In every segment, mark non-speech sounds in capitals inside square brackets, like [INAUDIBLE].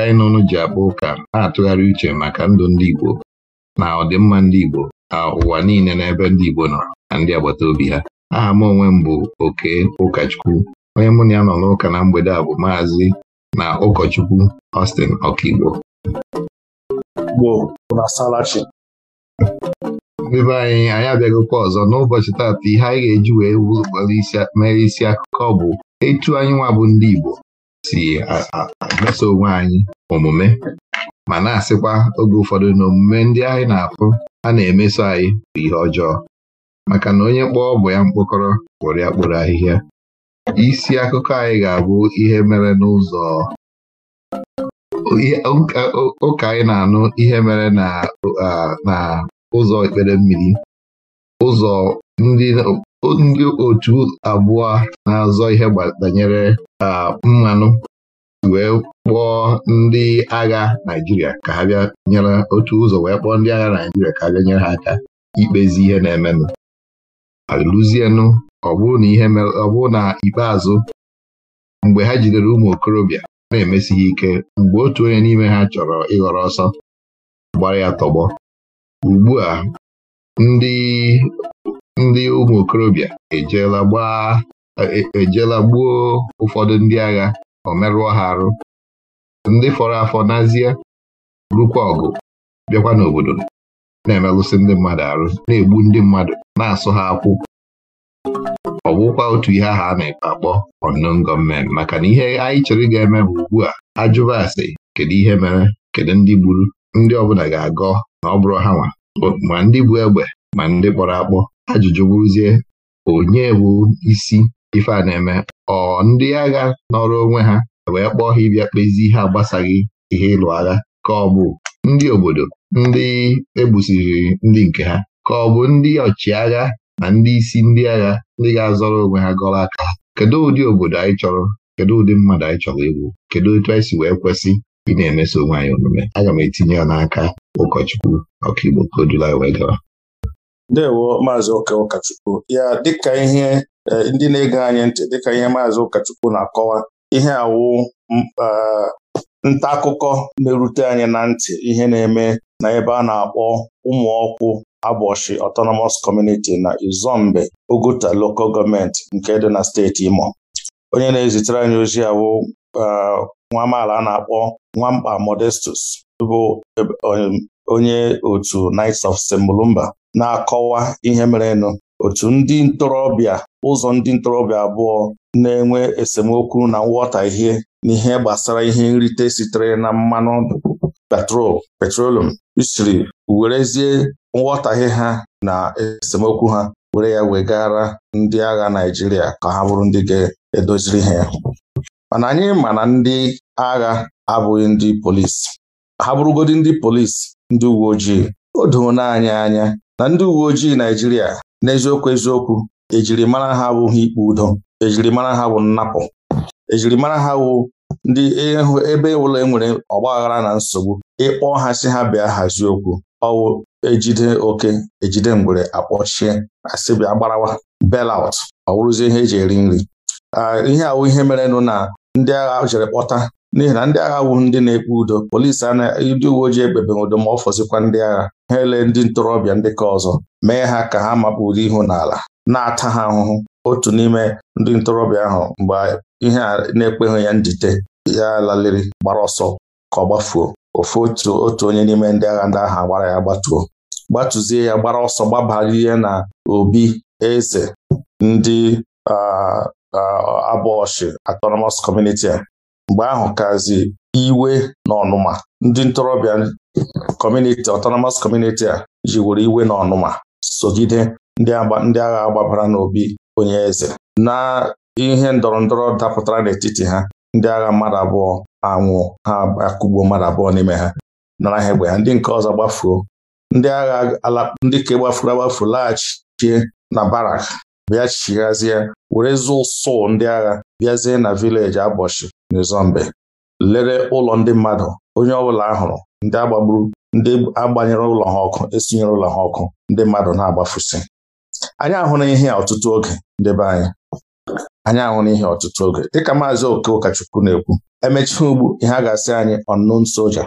nke anyị nọnụ ji akpa ụka na-atụgharị uche maka ndụ ndị Igbo na ọdịmma ndị Igbo na ụwa niile n'ebe ndị Igbo nọ na ndị agbata obi ha aha m onwe m bụ oke ụkọchukwu onye mụ na ya nọ n'ụka na mgbede a bụ maazị na ụkọchukwu Austin Ọkaigbo ndị be anyị anyị abịaghịkwa ọzọ n'ụbọchị taata ihe anyị ga-eji wee mere isi akụkọ bụ etu anyị nwa bụ ndị Igbo si meso onwe anyị omume ma na-asịkwa oge ụfọdụ na omume ndị anyị na-afụ a na-emeso anyị bụ ihe ọjọọ maka na onye kpọọ bụ ya mkpokọrọ kpụrụ ya kpụrụ ahịhịa isi akụkọ anyị ga-abụ ihe mere n'ụzọ ụka anyị na-anụ ihe mere na ụzọ ekpere mmiri ụzọ ndị otu abụọ na-azọ ihe banyere mmanụ wee kpọọ ndị agha naijiria ka ha bịa nyere otu ụzọ wee kpọọ ndị agha naijiria ka ha bịa nyere ha aka ikpezi ihe na-emenụ alụzienụ ọ bụrụ na ọ bụrụ na ikpeazụ mgbe ha jidere ụmụ okorobịa na-emesighị ike mgbe otu onye n'ime ha chọrọ ịghọrọ ọsọ gbara ya tọgbọ ugbu a ndị ụmụ okorobịa ejeela gbaa ejela e, e gbuo ụfọdụ ndị agha ọ merụọ ha arụ ndị fọrọ afọ n'azie rukwa ọgụ bịakwa n'obodo na emelụsị ndị mmadụ arụ na-egbu ndị mmadụ na-asụ ha akwụ ọ bụkwa otu ihe ahụ a na-ekpe akpọ unknown gọọmenti maka na ihe anyị chere ga-eme bụ ugbu a ajụba asị kedu ihe mere kedu ndị gburu ndị ọbụla ga-agọ na ọ bụrụ ha nwa ma ndị bụ egbe ma ndị kpọrọ akpọ ajụjụ bụrụzie onye bụ isi ife a na-eme ọ ndị agha nọrọ onwe ha wee kpọọ ha ịbịa kpezi ihe agbasaghị ihe ịlụ agha ka ọ bụ ndị obodo ndị egbusiri ndị nke ha ka ọ bụ ndị ọchịagha na ndị isi ndị agha ndị ga-azọrọ onwe ha gọrọ aka kedu ụdị obodo anyị chọrọ kedu ụdị mmadụ anyị chọrọ ịbụ kedu otu anyị si wee kwesị ị na-emeso onwe anyị omume aga m etinye ya n'aka ụkọchukwu ọkaigbo ka o wee gara ndewo maazị ụka ụkọchukwu ya dịka ihe Eh, ndị na-ege anyị ntị dịka ihe maazị ụkọchukwu na-akọwa ihe awụ eh, nta akụkọ na-erute anyị na ntị ihe na-eme na ebe a na-akpọ ụmụọkwụ Agbochi Autonomous Community na Izombe Oguta Local Government nke dị na steeti Imo onye na-ezitere anyị ozi awụ eh, nwa amaala a na-akpọ Nwamba Modestus bụ onye otu Knights of Semulumba na-akọwa ihe merenụ otu ndị ntorobịa ụzọ ndị ntorobịa abụọ na-enwe esemokwu na nghọtahie n'ihe gbasara ihe nrite sitere na mmanụ petrol petrolum siri werezie nghọtahie ha na esemokwu ha were ya wegara ndị agha naijiria ka ha bụrụ ndị ga-edoziri ha mana anyị ma na ndị agha abụghị ndị polisi ha bụrụgodi ndị polisi ndị uwe ojii o doona anyị anya na ndị uwe ojii Naijiria n'eziokwu eziokwu ejirimara ha abụghị ikpe udo ejirimara ha bụ nnapụ ejirimara ha wụ ndị ebe ụlọ enwere ọgbaghara na nsogbu ịkpọ ha si ha bịa hazie okwu ọwụ ejide oke ejide ngwere akpọchie asị bịa gbarawa belaut ọ bụrụzie ihe eji eri nri ah, ihe awụ ihe merenụ na ndị agha jere kpọta n'ihi na ndị agha wụ ndị na-ekpe udo polisi anaghị ndị uwe ojii ekpebeghị udo ma ọ fọzikwa ndị agha ha ele ndị ntorobịa ndị ka ọzọ mee ha ka ha makpuru ihu n'ala na-ata ha ahụhụ otu n'ime ndị ntorobịa ahụ mgbe ihe a na-ekpeghị ya njide, ya laliri gbara ọsọ ka ọ gbafuo ofu otu otu onye n'ime ndị agha ndị agha gbara ya gbatuo gbatuzie ya gbara ọsọ gbabarie na obi eze ndị abọọshị autonomous community a mgbe ahụ kazi iwe na ọnụma ndị ntorobịa kọmuniti ọtọnọmọs kọmuniti a jiwuru iwe na ọnụma sogide ndị agha agbabara n'obi onye eze na ihe ndọrọ ndọrọ dapụtara n'etiti ha ndị agha mmadụ abụọ anwụ ha akụgbuo mmadụ abụọ n'ime ha nara ha egbe ha ndị nke ọzọ gbafuo ndị agha ndị ka gbafuru agbafu laghachie na barak bịa chighazie were zụ ụsụ ndị agha bịazie na vileji abọchị n'Izombe lere ụlọ ndị mmadụ onye ọbụla ahụrụ ndị agbagburu ndị agbanyere ụlọ ha ọkụ esinyere ụlọ ha ọkụ ndị mmadụ na-agbafusi anyị ahụrụ ihe ọtụtụ oge ndebe anyị anyị ahụrụ ihe ọtụtụ oge dịka maazị oke ụkọchukwu na-ekwu emechaa ugbu ihe a ga-asị anyị ọnụn soja.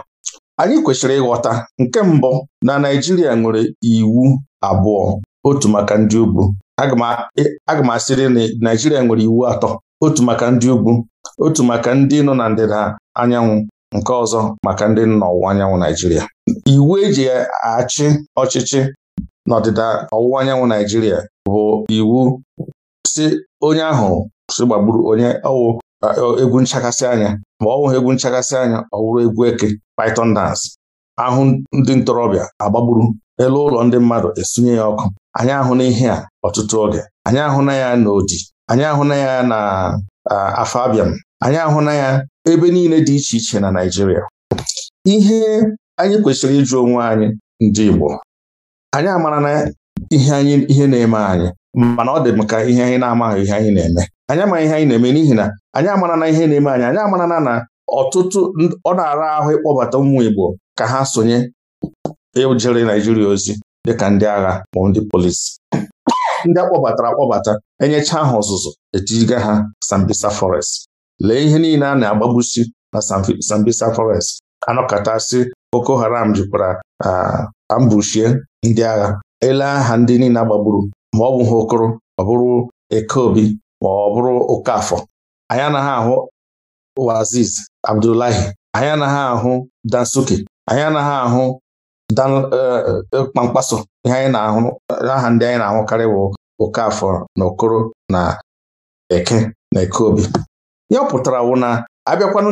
anyị kwesịrị ịghọta nke mbụ na Naijiria nwere iwu abụọ otu maka ndị ugwu aga m e, asịrị na Naijiria nwere iwu atọ otu maka ndị ugwu otu maka ndị nọ na ndịda anyanwụ nke ọzọ maka ndị nọ n'ọwụwa anyanwụ Naijiria iwu eji achị ọchịchị n'ọdịda ọwụwa anyanwụ Naijiria bụ iwu si onye ahụ si gbagburu onye ọwụ egwu nchakasị anya ma ọ wụghị egwu nchakasị anya ọ wụrụ egwu eke python dance ahụ ndị ntorobịa agbagburu elu ụlọ ndị mmadụ esunye ya ọkụ anyị ahụ n'ihe a ọtụtụ oge anyị ahụ na ya n'odi anyị ahụna ya na afọ abịam anyị ahụna ya ebe niile dị iche iche na Naịjirịa ihe anyị kwesịrị ịjụ onwe anyị ndị Igbo anyị amara na ihe anyị ihe na-eme anyị mana ọ dị m ka ihe anyị na-amaghị ihe anyị na-eme anyị amaghị ihe anyị na-eme n'ihi na anyị amara na ihe na-eme anyị anyị amara na ọtụtụ ọ na-ara ahụ ịkpọbata ụmụ Igbo ka ha sonye ejere Naịjirịa ozi dịka ndị agha ma ndị polisi ndị akpọbatara akpọbata enyecha ha ọzụzụ etijiga ha Sambisa Forest lee ihe niile a na-agbagbusi na Sambisa Forest si Boko Haram jikwara ambushie ndị agha ele aha ndị niile agbagburu ma ọ bụ ha okoro ọ bụrụ Ekeobi ma ọ bụrụ Okafọ anyị anaghị ahụ Waziz Abdullahi anyị anaghị ahụ anyị anaghị ahụ Okpamkpaso eh, eh, ihe anyị na-ahụ aha ndị anyị na-ahụkarị bụ Okafọ na Okoro na Eke na Ekeobi ya pụtara wụ na abịakwanụ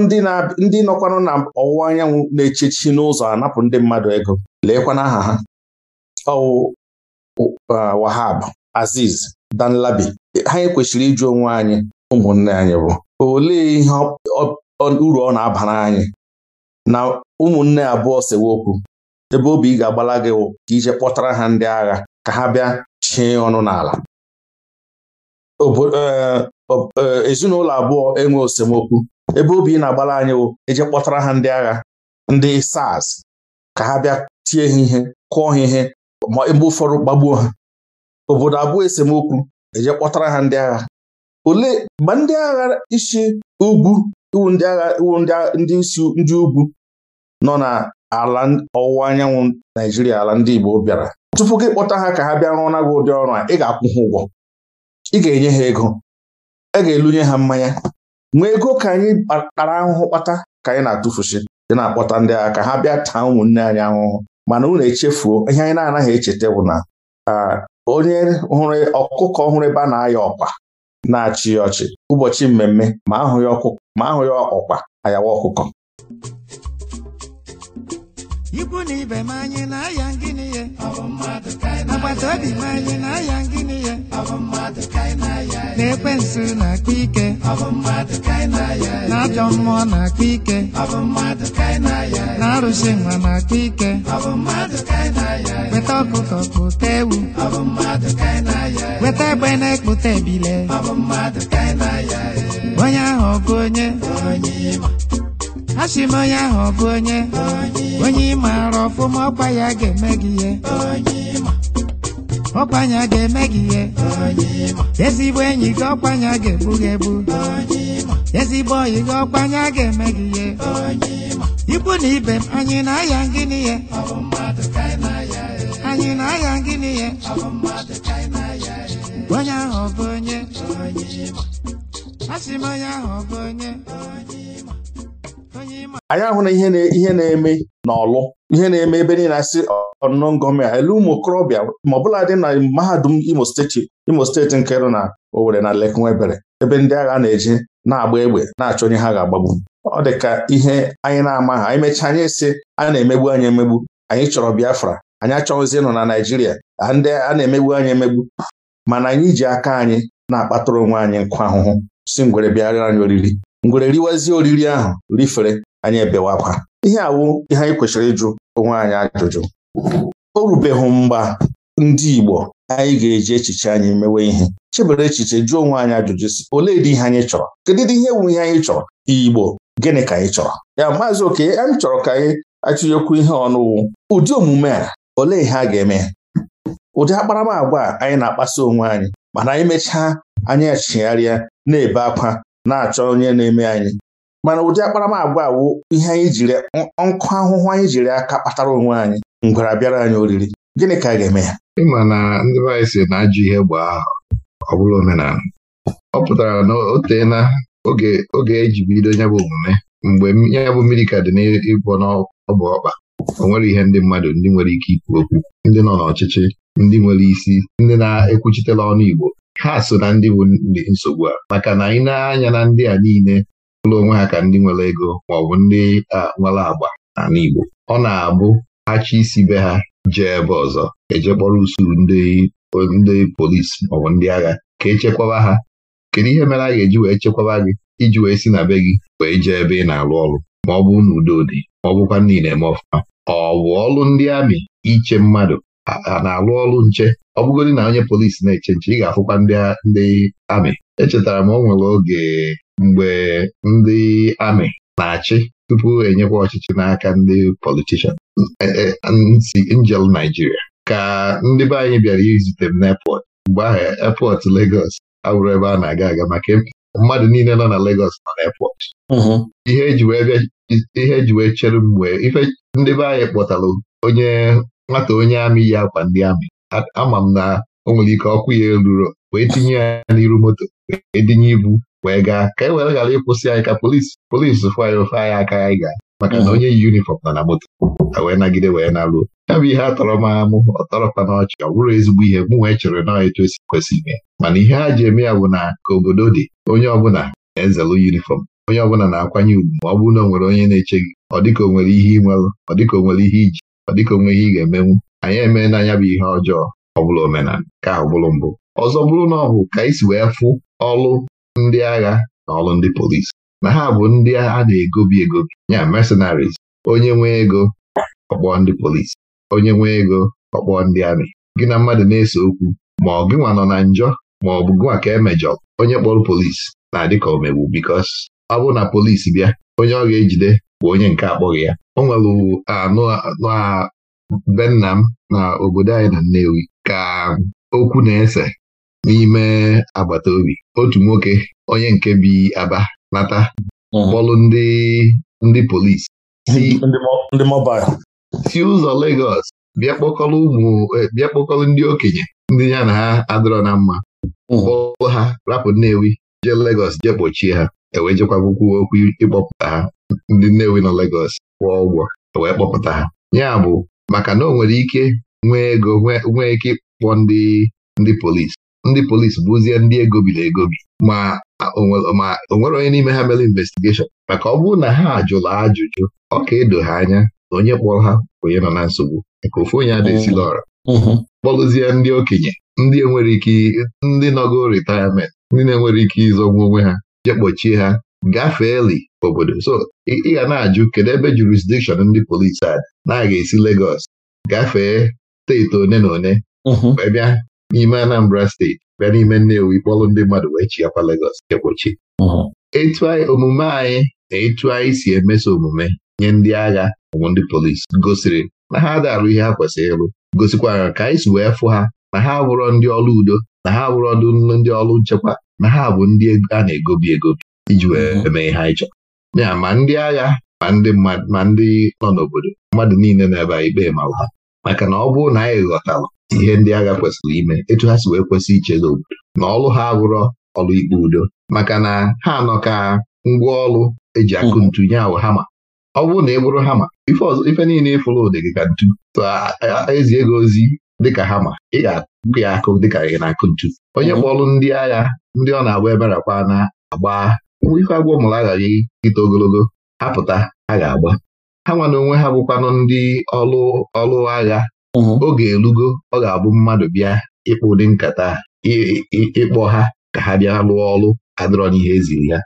ndị nọkwanụ na ọwụwa anyanwụ na-echechi n'ụzọ anapụ ndị mmadụ ego leekwana aha ha ọwụ eh, Wahab Aziz Danlabi ha kwesịrị ịjụ onwe anyị ụmụnne anyị bụ olee ihe uru ọ na-abara anyị na ụmụnne abụọ sewa okwu ebe obi ga-agbala gị wụ ka ije kpọtara ha ndị agha ka ha bịa chie ọnụ n'ala e, e, ezinụlọ abụọ enwe esemokwu; ebe obi na-agbala anyị wụ eje kpọtara ha ndị agha ndị SARS ka ha bịa tie ha ihe kụọ ha ihe ma ebe ụfọdụ gbagbuo ha obodo abụọ esemokwu eje kpọtara ha ndị agha ole ma ndị agha isi ugwu iwu ndị agha iwu ndị isi ndị ugwu nọ na ala ọwụwa anyanwụ Naijiria ala ndị Igbo bịara tupu gị kpọta ha ka ha bịa na gị ụdị ọrụ a ị ga-akwụ ha ụgwọ ị ga-enye ha ego a ga-elunye ha mmanya nwee ego ka anyị kpara ahụhụ kpata ka anyị na-atụfusi dị na-akpọta ndị agha ka ha bịa taa ụmụnne anyị ahụhụ mana unu echefuo ihe anyị na-anaghị echeta bụ na onye hụrụ ọkụkọ ọhụrụ ebe a na-aya ọkpa na-achị ya ọchị ụbọchị mmemme ma ahụ ya ọkpa ayawa ọkụkọ ikwu na ibe m anyị na-aya ngịnị agbata obi m anyị na-aya ngịnị ya na-ekwensu na-akpa ike na ajọ mmụọ na-akpa ike na arụsị nwa na-akpa ike weta ọkụkọ pụta ewu weta egbe na-ekpụta ebile onye ahụ ọgụ onye a sị m onye ahụ ọ bụ onye onye ị maara ọfụma ọkwa ya ga-eme gị ihe ya ga-eme gị ihe ezigbo enyi gị ya ga-ebu gị ebu ezigbo oyi gị ya ga-eme gị ihe ikwu na ibe m anyị na-aya ngịnị ihe anyị na-aya ngịnị ihe onye ahụ ọ bụ onye A asị m onye ahụ ọ bụ onye Onye anyị ahụ na ihe na-eme n'ọlụ ihe na-eme ebe niile asị ọnụnọ ngọọmị a elu ụmụ okorobịa ma ọ bụla dị na mahadum Imo steeti Imo steeti nke nọ na Owerri na Lake ebe ndị agha na-eje na-agba egbe na-achọ onye ha ga-agbagbu ọ dị ka ihe anyị na-amaghị anyị mechaa anyị sị a na-emegbu anyị emegbu anyị chọrọ Biafra anyị achọghịzi ịnọ na Naijiria ndị a na-emegbu anyị emegbu mana anyị ji aka anyị na-akpatara onwe anyị nkwa ahụhụ si ngwere bịara anyị oriri ngwere riwazie oriri ahụ rifere anyị ebewakwa ihe awụ ihe anyị kwesịrị ịjụ onwe anyị ajụjụ o rubeghị mgba ndị Igbo anyị ga-eji echiche anyị mewe ihe chebere echiche jụọ onwe anyị ajụjụ si olee dị ihe anyị chọrọ kedu dị ihe wu ihe anyị chọrọ Igbo gịnị ka anyị chọrọ ya maazị oke anyị chọrọ ka anyị achụnyekwu ihe ọnụwụ ụdị omume a olee ihe a ga-eme ụdị a anyị na-akpaso onwe anyị mana anyị mechaa anyị achịgharịa na-ebe akwa na-achọ onye na-eme anyị mana ụdị agba wụ ihe anyị jiri nkụ ahụhụ anyị jiri aka kpatara onwe anyị ngwara bịara anyị oriri gịnị ka a ga-eme ya ịma na ndị be anyị si na ajụ ihe gbaa ọ bụla omenala ọ pụtara na o teela oge eji e bido bụ omume mgbe nyabụ bụ mmiri ka dị n'ịbụ n'ọbụ ọkpa o nwere ihe ndị mmadụ ndị nwere ike ikwu okwu ndị nọ n'ọchịchị ndị nwere isi ndị na-ekwuchitela ọnụ Igbo ha so na ndị bụ ndị nsogbu a maka na anyị na-anya na ndị a niile ụlọ onwe ha ka ndị nwere ego maọbụ ndị nwere agba na Igbo ọ na-abụ achị isi be ha jee ebe ọzọ eje kpọrọ usoro ndị polisi maọbụ ndị agha ka echekwaba ha kedu ihe mere a ga-eji wee chekwaba gị iji wee si na be gị wee jee ebe ị na-arụ ọrụ ma ọ bụ na udo dị ma ọ bụkwa ndị na-eme ọfụma ọ bụ ọrụ ndị amị iche mmadụ na-alụ ọrụ nche ọ bụgodị na onye polisi na-eche nche ị ga-afụkwa ndị ndị amị echetara m o nwere oge mgbe ndị amị na-achị tupu enyekwa ọchịchị n'aka ndị politishan e, e, njel Naijiria ka ndị be anyị bịara izute m n'epọt mgbe ahụ epọt Legos abụrụ ebe a na-aga aga maka mmadụ niile nọ na Legos nọ n'epọt mm-hmm. ihe eji e wee chere mgbe ife ndị be anyị kpọtara onye nwata onye amị yi akwa ndị amị ama m na o nwere ike ọkụ ya eruro wee tinye ya n'iru moto edinye dinye ibu wee gaa ka e were ghara ịkwụsị anyị ka polisi polisi fụ anyị ofe anyị aka anyị gaa maka na mhm. onye yi yunifọm na na moto wee nagide wee naruo ya bụ ihe a tọrọ m amụ ọ na n'ọchị ọ bụrụ ezigbo ihe mụ wee chere na etu esi kwesị ime mana ihe ha ji eme ya bụ na ka obodo dị onye ọbụla na-ezelu yunifọm onye ọbụla na-akwanye ugwu ma ọ bụrụ na o nwere onye na-eche gị ọ dịka o nwere ihe ị ọ dịka o nwere ihe iji ọ dịka onweghị ị ga-emenwu anyị emee n'anya bụ ihe ọjọọ ọbụla omenala ka ahụ bụrụ mbụ ọzọ bụrụ na ọ bụ ka anyị si wee fụ ọlụ ndị agha na ọlụ ndị polisi na ha bụ ndị a na-egobi egobi ya mercenaries onye nwee ego ọkpọ ndị polisi onye nwee ego ọkpọ ndị amị gị na mmadụ na-ese okwu ma ọ gịnwa nọ na njọ ma ọ bụ gịnwa ka emejọ onye kpọrọ polisi na-adị ka omegbu bikos ọ bụrụ na polisi bịa onye ọ ga-ejide bụ onye nke akpọghị ya o nwere anụ be m na obodo anyị na Nnewi ka okwu na-ese n'ime agbata obi otu nwoke onye nke bi Aba nata hmm. kpọlụ ndị ndị polisi ndị si ụzọ Legọs bịa kpọkọrọ ụmụ e, bịa kpọkọrọ ndị okenye ndị ya na ha adịrọ na mma hmm. kpọọ ha rapụ Nnewi jee Legọs jee kpọchie ha ewejekwa kwụkwọ okwu ịkpọpụta ha ndị wi na Legos kwụọ ụgwọ e wee kpọpụta ha ya bụ maka na o nwere ike nwee ego nwee ike ịkpọ ndị ndị polisi ndị polisi bụzie ndị egobiri egobi ma o nwere onye n'ime ha mere investigeshọn maka ọ bụrụ na ha jụrụ ajụjụ ọ ka edo ha anya onye kpọrọ ha onye nọ na nsogbu maka ofu onye ada oh. ọra mm-hmm. kpọlụzie ndị okenye ndị enwere ike ndị nọgo rịtayamentị ndị na-enwere ike ịzọgbu onwe ha kpọchie ha gafee li obodo so ị ga na-ajụ kedu ebe jurisdikshọn ndị polisi a na-aga esi Legọs gafee steeti one na one mhm. wee bịa n'ime Anambra steeti bịa n'ime nnewu kpọlụ ndị mmadụ wee chiakwa Legọs egbochi mhm. etu omume anyị na etu anyị si emeso omume nye ndị agha ụmụ ndị polisi gosiri na ha darụ ihe ha kwesịrị ịlụ gosikwara ka anyị si wee fụ ha na ha bụrụ ndị ọrụ udo na ha bụrụ ndị ọrụ nchekwa na ha bụ ndị a na-egobi egobi iji wee mhm. eme ihe anyị chọrọ ya ma ndị agha ma ndị ma ndị nọ n'obodo mmadụ niile na-ebe ikpe mara ha maka na ọ bụrụ na anyị ghọtara ihe ndị agha kwesịrị ime etu ha si wee kwesị ichezi obodo na ọlụ ha abụrọ ọlụ ikpe udo maka na ha nọ ka ngwa ọlụ eji akụ mhm. ntu nye awụ hama ọ bụrụ na ị bụrụ hama ife niile ịfụrụ ụdị gị ka ntu ezi ego ozi dịka hama ị ga-akụ ya akụ dịka ị na-akụ ntu onye mhm. kpọlụ ndị agha ndị ọ na-agba eberakwa na-agba ife agwọ mụrụ aghaghị ịta ogologo apụta a ga-agba ha nwana onwe ha bụkwanụ ndị ọlụ ọlụ agha oge elugo ọ ga-abụ mmadụ bịa ịkpụ ụdị nkata ịkpọ ha ka ha bịa lụọ ọlụ adịrọ n'ihe eziri ya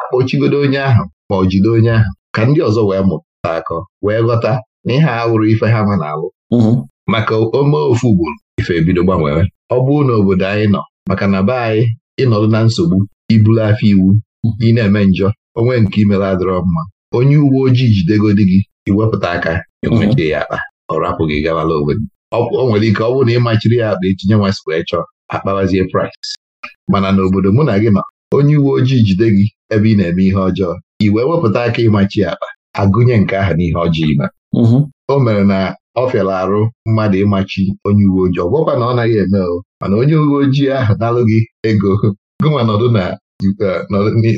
akpọchigodo onye ahụ ma ọ jide onye ahụ ka ndị ọzọ wee mụta akọ wee ghọta na ihe ahụrụ ife ha ma na-alụ maka ome ofu ugboro ife ebido gbanwere ọ bụrụ na obodo anyị nọ maka na be anyị ịnọdụ na nsogbu ibulu afọ iwu ị na-eme njọ onwe nke imela adịrọ mma onye uwe ojii jidegodi gị iwepụta aka ịmachi ya akpa ọ rapụ gị gabala obodo o nwere ike ọ bụrụ na ịmachiri ya akpa etinye nwa skwee chọọ akpawazie price mana n'obodo mụ na gị ma onye uwe ojii jide gị ebe ị na-eme ihe ọjọọ iwe wepụta aka ịmachi akpa agụnye nke ahụ n'ihe ọjọọ ime mhm. o mere na ọ fịara arụ mmadụ ịmachi onye uwe ojii ọ na ọ naghị eme o mana onye uwe ojii ahụ nalụ gị ego nọdụ na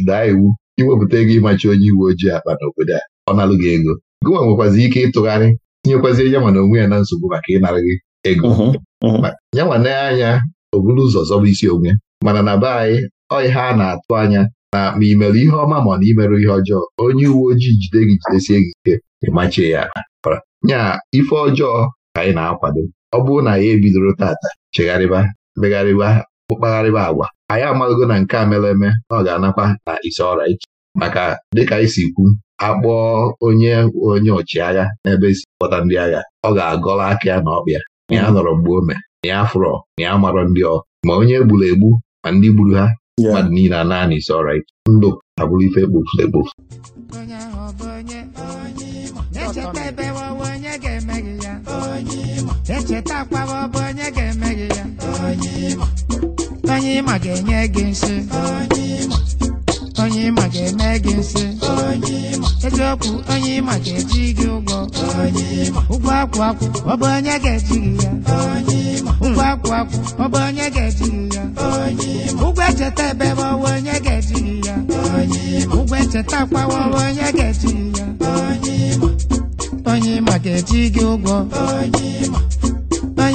daa iwu iwepụta ego ịmachi onye uwe ojii akpa n'obodo a ọ nalụ gị ego gụnwa nwekwazi ike ịtụgharị tinyekwazi ya na onwe ya na nsogbu maka ịnara gị ego ya nwa anya o buru ụzọ zọba isi onwe mana na be anyị ihe a na-atụ anya na ma ị ihe ọma ma ọ na imerụ ihe ọjọọ onye uwe ojii jide gị jidesie gị ike ịmachie ya nya ife ọjọọ ka anyị na-akwado ọ bụrụ na ya ebidoro tata chegharịba megharịba ụkpagharịba agwa anyị amaghịgo na nke a mere eme ọ ga-anakwa na isi ọra iche maka dịka anyị si kwu akpọọ onye onye ọchịagha n'ebe esi kpọta ndị agha ọ ga-agọla aka ya na ọkpịa na ya nọrọ mgbe ome na ya fụrọ na ya marọ ndị ọ ma onye gburu egbu ma ndị gburu ha mmadụ niile a naanị isi ọra iche ndụ abụrụ ife ekpofu egbufu. echeta bụ onye ga onye ịma ga-enye gị nsị onye ịma ga-eme gị nsị eziokwu onye ịma ga-eji gị ụgwọ ụgwọ akwụ akwụ ọ bụ onye ga-eji gị ya ụgwọ akwụ akwụ ọ bụ onye ga-eji gị ya ụgwọ echeta ebe bụ onye ga-eji gị ya ụgwọ echeta akwawa bụ onye ga-eji gị ya onye ịma ga-eji gị ụgwọ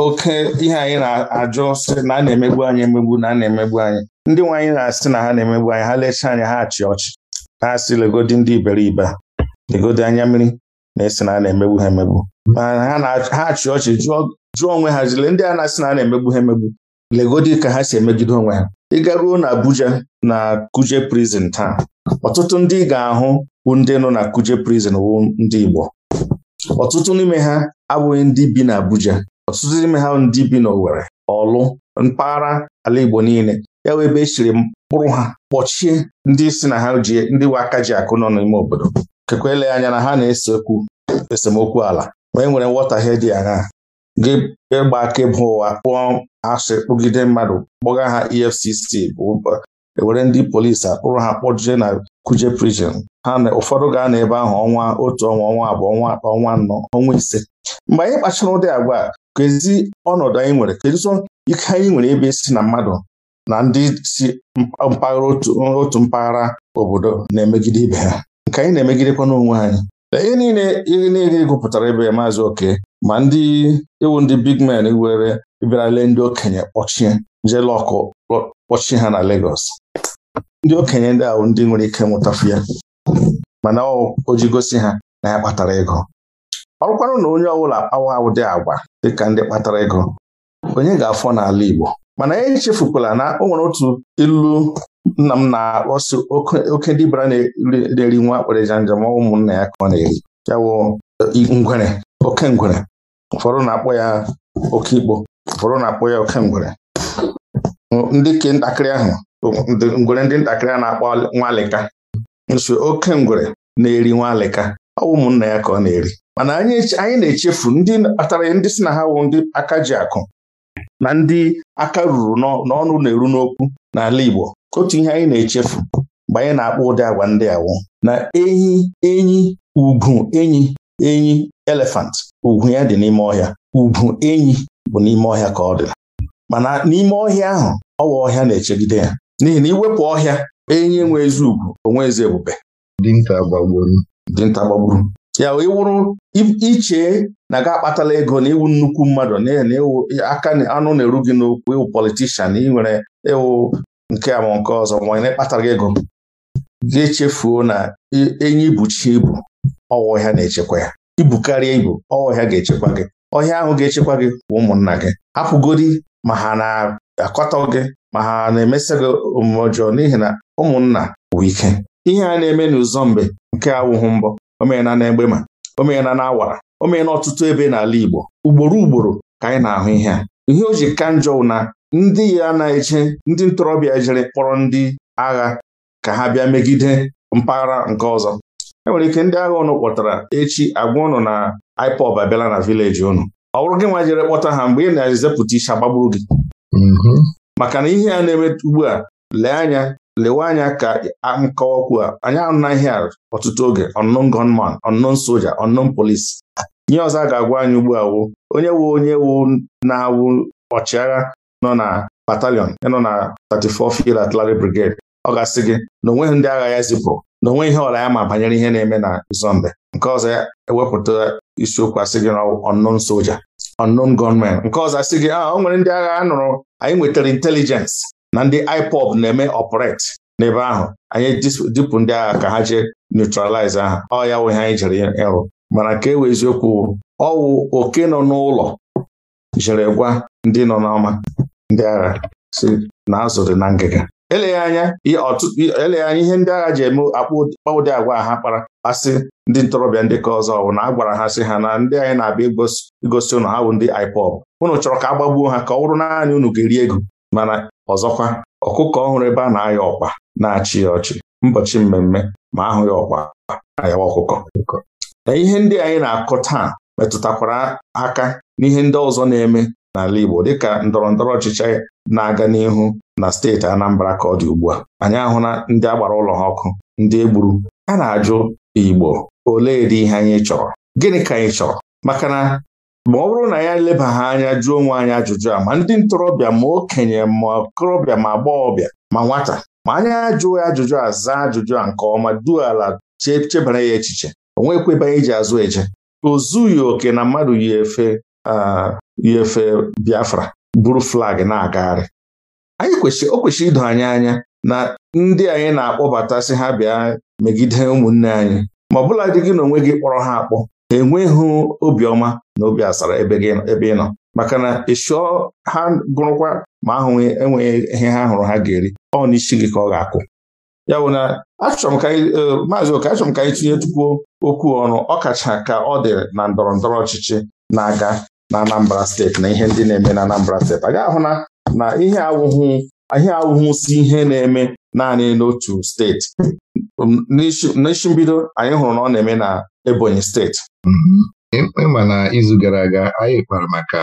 oke ihe anyị na-ajụ sị na a na-emegbu anyị emegbu na a na-emegbu anyị ndị nwe anyị na-asị na ha na-emegbu anyị ha lechaa anyị ha achị ọchị Ha asị legodi ndị iberibe legodi anya mmiri na-esi na a na-emegbu ha emegbu ha achị ọchị jụọ onwe ha jile ndị a na-asị na a na-emegbu ha emegbu legodi ka ha si emegide onwe ha ịgaruo na Abuja na Kuje prison taa ọtụtụ ndị ga-ahụ bụ ndị nọ na Kuje prison wụ ndị Igbo ọtụtụ n'ime ha abụghị ndị bi na Abuja ọtụtụ n'ime ha ndị bi n'Owere, ọlụ mpaghara ala Igbo niile ya wee ebe e chiri mkpụrụ ha kpọchie ndị si na ha ji ndị we aka ji akụ nọ n'ime obodo kekwa ele anya na ha na-ese okwu esemokwu ala ma e nwere nghọtahie dị aṅaa gị ịgba aka ịba ụwa kpụọ asị kpụgide mmadụ kpọga ha EFCC e were ndị polisi akpụrụ ha kpọjie na kuje prison ha na ụfọdụ ga na ebe ahụ ọnwa otu ọnwa ọnwa abụọ ọnwa atọ ọnwa anọ ọnwa ise mgbe anyị kpachara ụdị agwa kezi ọnọdụ anyị nwere keduzo ike anyị nwere ebe e si na mmadụ na ndị si mpaghara otu mpaghara obodo na-emegide ibe ha nke anyị na-emegidekwa n'onwe anyị ihe niile ihe niile e gụpụtara ebe maazị oke ma ndị iwu ndị big men were bịara ndị okenye kpọchie jelọkụ kpọchie ha na legos ndị okenye ndị ahụ ndị nwere ike nwụtafu ya mana o ji gosi ha na ya kpatara ego ọ na onye ọbụla kpawa dị agwa dịka ndị kpatara ego onye ga-afọ n'ala Igbo mana anyị e chefukwala na o nwere otu ilu nna m na-akpọsi oke bara na-eri nwa akpịrịja njem ụmụnna ya ka ọ na-eri ya wụ ngwere oke ngwere ụfọdụ na-akpọ ya oke Igbo ụfọdụ na-akpọ ya oke ngwere ndị ke ntakịrị ahụ ngwere ndị ntakịrị a na-akpọ nwalịka nso oke ngwere na-eri nwalịka ọ bụ ụmụnna ya ka ọ na-eri mana anyị na-echefu ndị kpatara ndị si na ha wụ ndị aka ji akụ na ndị aka ruru n'ọnụ na-eru n'okwu n'ala Igbo otu ihe anyị na-echefu mgbe anyị na-akpọ ụdị agwa ndị awụ na enyi enyi ugwu enyi enyi elefant ugwu ya dị n'ime ọhịa ugwu enyi bụ n'ime ọhịa ka ọ dị mana n'ime ọhịa ahụ ọwa ọhịa na-echegide ya n'ihi na iwepụ ọhịa enyi nwe ezi ugwu onwe ezi ebube dinta gbagburu dinta gbagburu ya iwụrụ iche na ga akpatala ego na iwu nnukwu mmadụ na na iwu aka anụ na-eru gị n'okwu iwu politishan ịnwere iwu nke ama nke ọzọ ma na ekpatara gị ego gị echefuo na enyi ibuchi ibu ọwa ọhịa na-echekwa ya ibukarịa ibu ọwa ọhịa ga-echekwa gị ọhịa ahụ ga-echekwa gị kwa ụmụnna gị hapụgodi ma ha na-akọtọ gị ma ha na-emesa gị omume ọjọọ n'ihi na ụmụnna bụ ike ihe a na-eme n'ụzọ mgbe nke awụhụ mbọ o mere na omena na awara o na ọtụtụ ebe n'ala Igbo ugboro ugboro ka anyị na-ahụ ihe a ihe o ji ka njọ na ndị ya na-eche ndị ntorobịa jere kpọrọ ndị agha ka ha bịa megide mpaghara nke ọzọ e nwere ike ndị agha ụnụ kpọtara echi agwa ụnụ na IPOB abịala na vileji ụnụ ọ bụrụ gị nwa jere kpọta ha mgbe ị na-ezepụta isi agbagburu gị mhm. maka na ihe a na-eme ugbu a lee anya lewe anya ka nkọwa okwu a anyị anaghị ọtụtụ oge unknown gunman unknown soldier unknown police nye ọzọ a ga-agwa anyị ugbu a wụ onye wu onye wu na-awụ ọchịagha nọ na batalion nọ na 34 Field Artillery Brigade ọ ga-asị gị na onweghị ndị agha ya zipụrụ na onwe ihe ọla ya ma banyere ihe na-eme na Zombe nke ọzọ ya ewepụta isiokwu asị gị na unknown soldier unknown gunman nke ọzọ asị gị a ah, o nwere ndị agha a nụrụ anyị nwetara intelijensị na ndị IPOB na-eme ọpụret n'ebe ahụ anyị dipụ ndị agha ka ha jee neutralize aha ọ ya wụ ihe anyị jere ịrụ mana ka e wee eziokwu ọwụ oke nọ n'ụlọ jere gwa ndị nọ n'ọma ndị agha si na azụ na ngịga eleghị anya eleghị anya ihe ndị agha ji eme akpa ụdị agwa ha kpara asị ndị ntorobịa ndị ka ọzọ bụ na a gwara ha sị ha na ndị anyị na-abịa igosi ụnụ ha bụ ndị IPOB unu chọrọ ka a gbagbuo ha ka ọ bụrụ naanị unu ga-eri ego mana ọzọkwa ọkụkọ ọhụrụ ebe a na-ayọ ọkpa na-achị ya ọchị mbọchị mmemme ma ahụ ya ọkpa ayawa ọkụkọ na ihe ndị anyị na-akọ taa metụtakwara aka n'ihe ndị ọzọ na-eme n'ala Igbo dịka ndọrọ ndọrọ ọchịchị na-aga n'ihu na steeti Anambra ka ọ dị ugbu a anyị ahụla ndị agbara ụlọ ha ọkụ ndị egburu a na-ajụ Igbo olee dị ihe anyị chọrọ gịnị ka anyị chọrọ maka na ma ọ bụrụ na ya ha anya jụọ onwe anyị ajụjụ a ma ndị ntorobịa ma okenye ma okorobịa ma agbọghọbịa ma nwata ma anya ajụ ya ajụjụ a zaa ajụjụ a nke ọma duo ala chebara ya echiche o iji anyị ji azụ eje o oke na mmadụ yi efe yi efe Biafra buru flag na-agagharị anyị kwesịrị o kwesịrị ido anyị anya na ndị anyị na-akpọbata sị ha bịa megide ụmụnne anyị ma ọ bụla dị gị na onwe gị kpọrọ ha akpọ enweghị obiọma n'obi obi asara ebe ị nọ maka na ịchụọ ha gụrụkwa ma ahụ enweghị ihe ha hụrụ ha ga-eri ọ n'isi gị ka ọ ga-akụ ya bụ na e, maazị oke achọrọ m ka anyị tinye tupu okwu ọnụ ọkacha ka ọ dị na ndọrọ ndọrọ ọchịchị na-aga na Anambra steeti na ihe ndị na-eme na Anambra steeti a ga-ahụ na na ihe awụhụ ihe awụhụ si ihe na-eme naanị n'otu steeti n'isi mbido anyị hụrụ na ọ na-eme na Ebonyi steeti mm-hmm. ịma na izu gara aga anyị kpara maka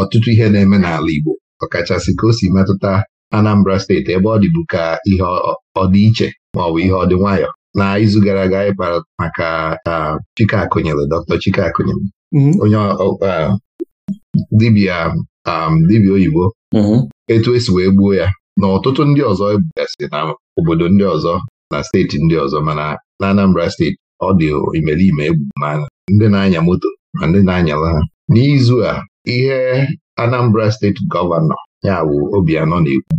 ọtụtụ ihe na-eme n'ala Igbo ọkachasị ka o si metụta Anambra steeti ebe ọ dịbu ka ihe ọdịiche maọbụ ihe ọdị nwayọ na izu gara aga anyị kpara maka Chike Akụnyere Dr. Chike Akụnyere mm-hmm. onye dibia dibia um, oyibo mm-hmm. etu esi wee gbuo ya na ọtụtụ ndị ọzọ ebugasị na obodo ndị ọzọ na steeti ndị ọzọ mana na Anambra steeti ọ dị imeriime egbu mana ndị na-anya moto na ndị na-anyala ha n'izu a ihe Anambra steeti gọvanọ ya bụ Obianọ na-ekwu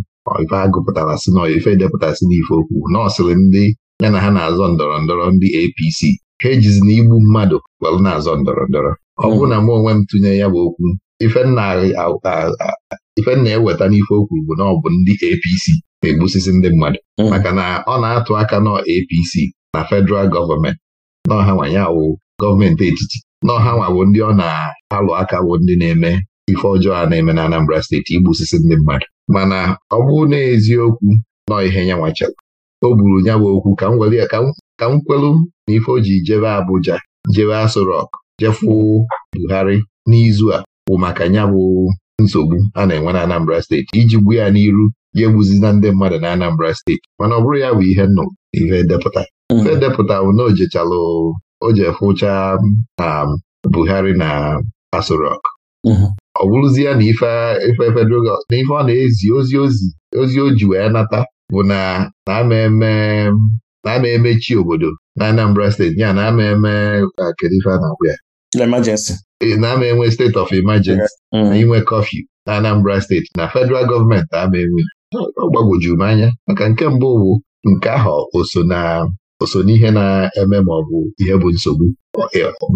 ife agụpụtara si na ife edepụtasị n'ife okwu nọọsịrị ndị ya na ha na-azọ ndọrọ ndọrọ ndị APC ha ejizi na igbu mmadụ kwelụ na-azọ ndọrọ ndọrọ ọ bụrụ na mụ onwe m tụnye ya bụ okwu ife na-eweta e n'ife okwu bụ na ọ bụ ndị APC na-egbusisi ndị mmadụ hmm. maka na ọ na-atụ aka nọ APC na federal gọọmenti n'ọha nwanyị awụ gọọmenti etiti n'ọhanwa bụ ndị ọ na-alụ aka bụ ndị na-eme ife ọjọọ a na-eme na Anambra steeti igbusisi ndị mmadụ mana ọ bụ na eziokwu nọ ihe ya nwachara o buru ya bụ okwu ka m gwere ya ka m kwelu na ife o ji jebe Abuja jebe Aso jefu Buhari n'izu a bụ maka nya bụ nsogbu a na-enwe na Anambra steeti iji gbu ya n'iru ya egbuzina ndị mmadụ na Anambra steeti mana ọ bụrụ ya bụ ihe nnụ ife depụta hmm. ife depụta bụ na ojechalụ o ji fụcha na um, Buhari na Aso mhm. ọ bụrụzie na ife federal ọ na-ezi ozi ozi ozi o ji wee nata bụ na na-ama eme emechi obodo na Anambra steeti ya na ama eme uh, na-ama e, enwe steeti of emergency mm. na inwe kọfị na Anambra steeti na federal gọọmenti ama enwe ọ gbagwojuru m anya maka nke mbụ bụ nke ahụ o o ihe na-eme ma ọ bụ ihe bụ nsogbu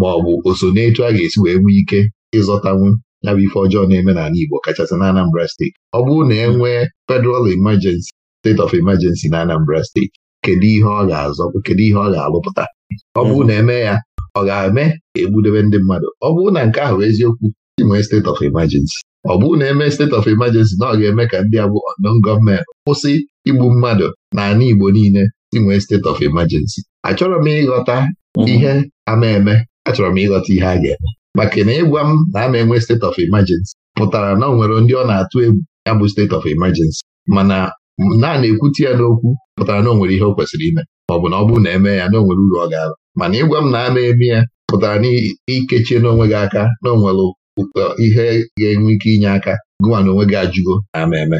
ma ọ bụ o so a ga-esi wee nwee ike ịzọtanwu ya bụ ife ọjọọ na-eme n'ala Igbo kachasị na Anambra steeti ọ bụrụ na e nwee federal emergency state of emergency na Anambra steeti kedu ihe ọ ga-azọ kedu ihe ọ ga-alụpụta ọ bụrụ na eme ya ọ ga-eme egbudebe ndị mmadụ ọ bụrụ na nke ahụ eziokwu inwee steeti of emergency ọ bụrụ na eme steeti of emergency na ọ ga-eme ka ndị a bụ gọọmenti kwụsị igbu mmadụ na ala Igbo niile inwee state of emergency achọrọ m ịghọta mhm. ihe ama eme achọrọ m ịghọta ihe a ga-eme maka na ịgwa m na a na-enwe state of emergency pụtara na ọ nwere ndị ọ na-atụ egwu ya bụ state of emergency mana na na ya n'okwu pụtara na o nwere ihe o kwesịrị ime ma ọ bụ na ọ bụrụ na eme ya na o nwere uru ọ ga-aba mana ịgwa m na a na-eme ya pụtara na ikechie n'onwe gị aka na onwere ihe ga-enwe ike inye aka gụwa na onwe gị ajụgo na ama eme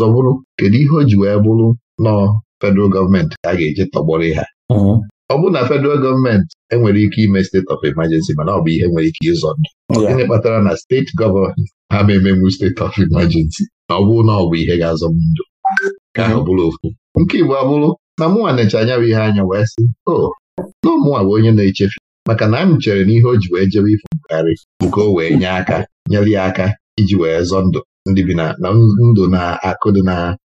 ọzọ bụrụ kedu ihe o ji wee bụrụ nọọ federal gọọmenti a ga eje tọgbọrọ ha ọ bụrụ na federal gọọmenti enwere ike ime steeti of emergency mana ọ bụ ihe nwere ike ịzọ ndụ gịnị kpatara na steeti gọvanọ ha ma emenwu steeti of emergency na ọ bụrụ na ọ bụ ihe ga-azọ m ndụ ka ahụ bụrụ ofu nke Igbo abụrụ na mụnwa na-eche anya bụ ihe anya wee sị o na ụmụnwa bụ onye na-echefu maka na m chere na ihe o ji wee jebe ifo mkpegharị nke o wee nye aka nyere ya aka iji wee zọ ndụ ndị bi na ndụ na akụ dị na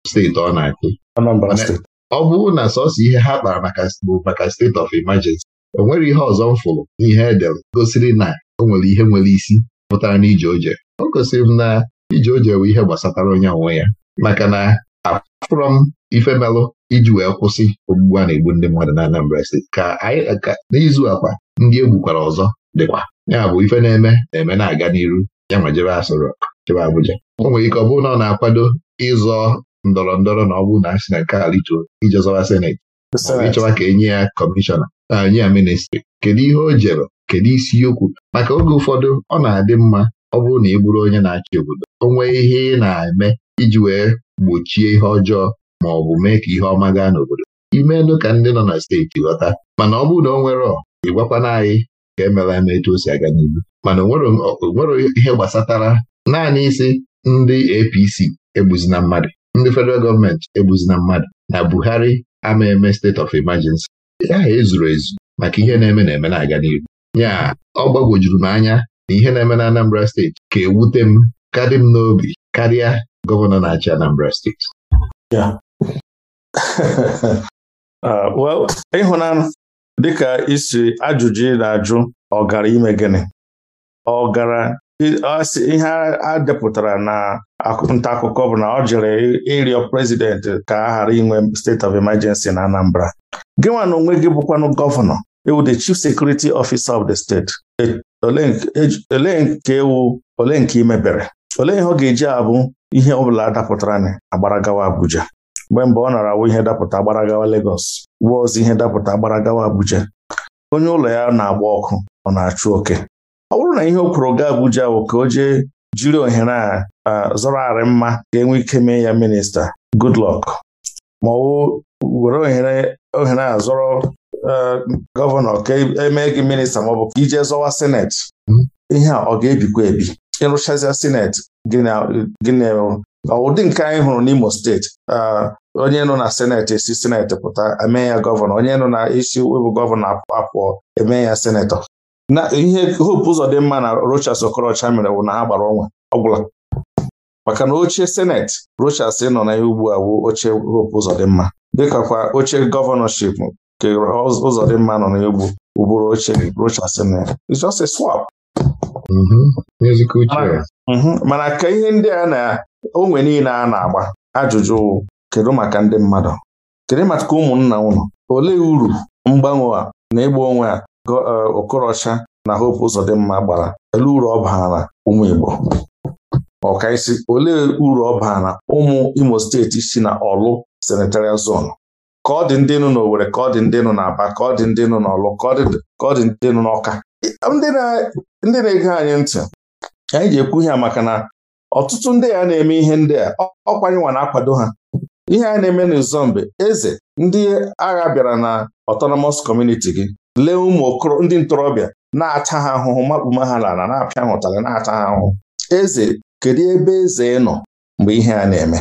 steeti ọ na-akụ ọ bụrụ na sọsọ ihe ha kpara maka bụ maka steeti of emergency o nwere ihe ọzọ m fụrụ n'ihe edel gosiri na o nwere ihe nwere isi pụtara na ije oje o gosiri m na ije oje bụ ihe gbasatara onye onwe ya maka na afụrọ m ifemelụ iji wee kwụsị ogbugbu a na-egbu ndị mmadụ na Anambra steeti ka anyị n'izu akwa ndị egbukwara ọzọ dịkwa ya bụ ife na-eme na-eme na-aga n'iru ya ma jebe asọrọ chebe Abuja o nwere ike ọ bụrụ na ọ na-akwado ịzọ ndọrọ ndọrọ na ọ bụrụ na a sị na nke alichuo ije zọwa seneti ịchọwa ka enye ya kọmishọna nye ya ministri kedu ihe o jere kedu isiokwu maka oge ụfọdụ ọ na-adị mma ọ bụrụ na ị bụrụ onye na-achị obodo o nwee ihe ị na-eme iji wee gbochie ihe ọjọọ ma ọ bụ mee ka ihe ọma gaa n'obodo Ime ka ndị nọ na steeti ghọta mana ọ bụrụ na ọ nwere ịgwakwana anyị ka emela eme etu o si aga n'ihu mana o ihe gbasatara naanị isi ndị APC egbuzina mmadụ ndị federal gọọmenti egbuzina mmadụ na Buhari Amaeme eme state of emergency ya ezuru ezu maka ihe na-eme na-eme na-aga n'ihu ya ọ gbagwojuru m anya na ihe na-eme na Anambra steeti ka ewute m kadị m n'obi karịa gọvanọ na-achị Anambra steeti [LAUGHS] ah, ịhụnanụ dịka isi ajụjụ ị na-ajụ ọ gara ime gịnị ọ ihe a depụtara na nta akụkọ bụ na ọ jere ịrịọ prezidenti ka a ghara inwe steeti of emergency na Anambra gị nwa na onwe gị bụkwanụ gọvanọ ewu the chief security officer of the state e, e, olee nke ewu ole nke imebere olee ihe ọ ga-eji abụ ihe ọbụla dapụtara agbaragawa Abuja mgbe mgbe ọ nara awụ ihe dapụta agbaragawa legos wuo ozi ihe dapụta agbaragawa Abuja onye ụlọ ya na-agba ọkụ ọ na-achụ oke ọ bụrụ na ihe o kwuru ga Abuja bụ ka o jee jiri ohere a zọrọ arị mma ga-enwe ike mee ya minista Goodluck ma ọ were ohere a zọrọ e, gọvanọ ka emee gị minista maọbụ ka ije zọwa senet. ihe a ọ ga-ebikwa ebi ịrụchazia sineti gịnị ụdị nke anyị hụrụ n'Imo steeti onye nọ na seneti esi seneti pụta emee ya gọvanọ onye nọ na isi webụ gọvanọ apụọ emee ya senetọ na ihe hope ụzọ dị mma na Rochas Okorocha mere bụ na ha gbara ọnwa ọgwụla maka na oche seneti Rochas nọ na ihe ugbu a bụ oche hope ụzọ dị mma oche gọvanọship nke ụzọ dị mma nọ na egbu ụbụrụ oche Rochas swap mm-hmm. mm-hmm. mana ka ihe ndị a na onwe niile a na-agba ajụjụ kedu maka ndị mmadụ kedu maka ụmụnna ụnụ olee uru mgbanwe a na ịgba onwe a Uh, Okorocha na Hope Uzodimma gbara ele uru ọ baara ụmụ Igbo ọkaisi olee uru ọ baara ụmụ Imo steeti si na Ọlụ senatorial zone ka ọ dị ndị nọ n'Owere ka ọ dị ndị n'Aba ka ọ dị ndị n'Ọlụ ka ọ dị ndị n'Ọka ndị na-ege anyị ntị anyị ji ekwu ihe maka na ọtụtụ ndị a na-eme ihe ndị a ọkwanyịnwa na-akwado ha ihe a na-eme n'Izombe eze ndị agha bịara na autonomous community gị lee ụmụ ndị ntorobịa na-ata ha ahụhụ makpuma ha n'ala na-apịa ha na-ata ha ahụhụ eze kedu ebe eze nọ mgbe ihe a na-eme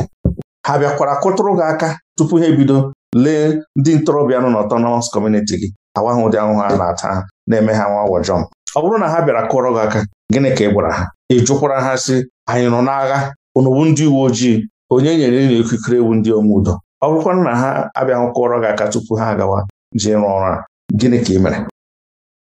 ha bịakwara kụtụrụ gị aka tupu ha ebido lee ndị ntorobịa nọ n'ọtọnọmọs kọmuniti gị awa ha ụdị ahụhụ a na-ata ha na-eme ha nwa wọjọm ọ bụrụ na ha bịara kụọrọ gị aka gịnị ka ị gwara ha ị jụkwara ha sị anyị nọ n'agha onowu ndị uwe ojii onye nyere ịnụ ikikere ewu ndị ome ọ na ha abịahụ kụọrọ gị aka tupu ha agawa ji rụọ ọrụ a gịnị ka ị mere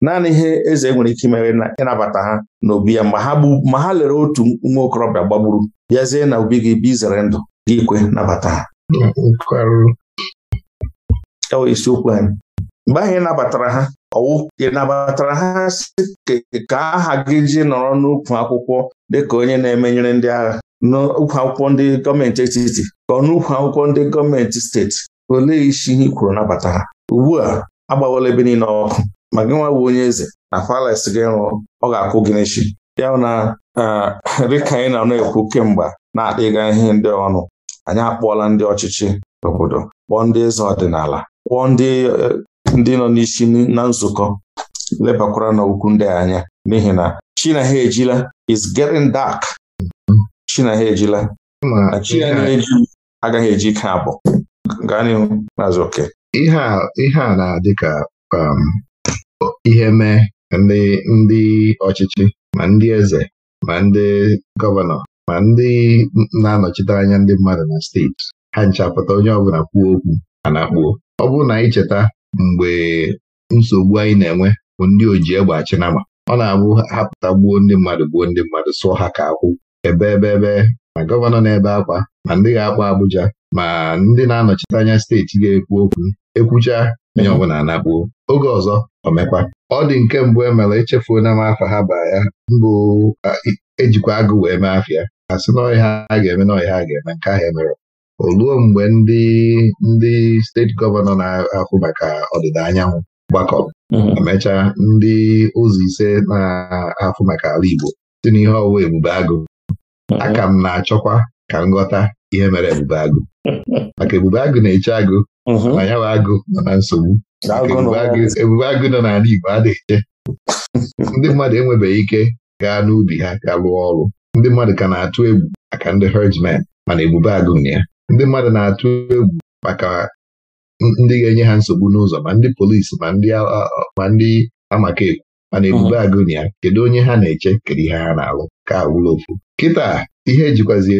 naanị ihe eze nwere ike imere ịnabata ha n'obi ya ma ha lere otu nwa okorobịa gbagburu bịazie na obi gị bụ izere ndụ gị kwe nabata ha e isiokwu anyị mgbe ahụ nabatara ha ọwụ ị nabatara ha ka aha gị ji nọrọ n'ukwu akwụkwọ dịka onye na-emenyere ndị agha n'ukwu akwụkwọ ndị gọọmenti etiti ka ọ n'ukwu akwụkwọ ndị gọọmenti steeti olee isi ihe i kwuru nabata ha ugbu a agbawala ebe niile ọkụ ma gị nwa bụ onye eze na palace gị rụrụ ọ ga-akwụ gị n'echi. ya na eh, dịka anyị na-ekwu kemgbe na-akpịga ihe ndị ọnụ anyị akpọọla ndị ọchịchị obodo kpọọ ndị eze ọdịnala kpọọ ndị eh, nọ n'isi na nzukọ lebakwara n'okwu ndị anya n'ihi na chi ejila is getting dark chi ejila na chi eji agaghị eji ike abụọ gaa n'ihu maazị oke ihe a na-adị ka um, ihe mee ndị ndị ọchịchị ma ndị eze ma ndị gọvanọ ma ndị na-anọchite anya ndị mmadụ na steeti ha nchapụta onye ọbụla kwuo okwu a na-akpuo ọ bụrụ na anyị cheta mgbe nsogbu anyị na-enwe bụ ndị oji egbe achị nama ọ na-abụ hapụta gbuo ndị mmadụ gbuo ndị mmadụ sụọ ha ka akwụ ebe ebe ebe ma gọvanọ na-ebe akwa ma ndị ga-akpa Abuja ma ndị na-anọchite anya steeti ga-ekwu okwu ekwucha onye mhm. ọbụla anakpuo oge ọzọ omekwa ọ dị nke mbụ e mere echefuona m afa ha ba ya mbụ ejikwa agụ wee mee afịa a sị na ọhịa a ga-eme na ọhịa a ga-eme nke ahụ emere oluo mgbe ndị ndị steeti gọvanọ na-ahụ maka ọdịda anyanwụ gbakọrọ Emecha mhm. ndị ụzọ ise na-ahụ maka ala Igbo si n'ihe ọwụwa ebube agụ mhm. aka m na-achọkwa ka m ghọta ihe mere ebube agụ [LAUGHS] maka ebube agụ na-eche agụ na ya bụ agụ nọ na nsogbu ebube agụ nọ n'ala Igbo adịghị [LAUGHS] ndị mmadụ enwebeghị ike gaa n'ubi ha ga lụọ ọrụ ndị mmadụ ka na-atụ egwu maka ndị herdsmen mana ebube agụ ya ndị mmadụ na-atụ egwu maka ndị ga-enye ha nsogbu n'ụzọ ma ndị polisi ma ndị amaka ekwu mana ebube hmm. agụ ya kedu onye ha na-eche kedu ihe ha na-alụ ka awụla ofu kịta ihe ejikwazi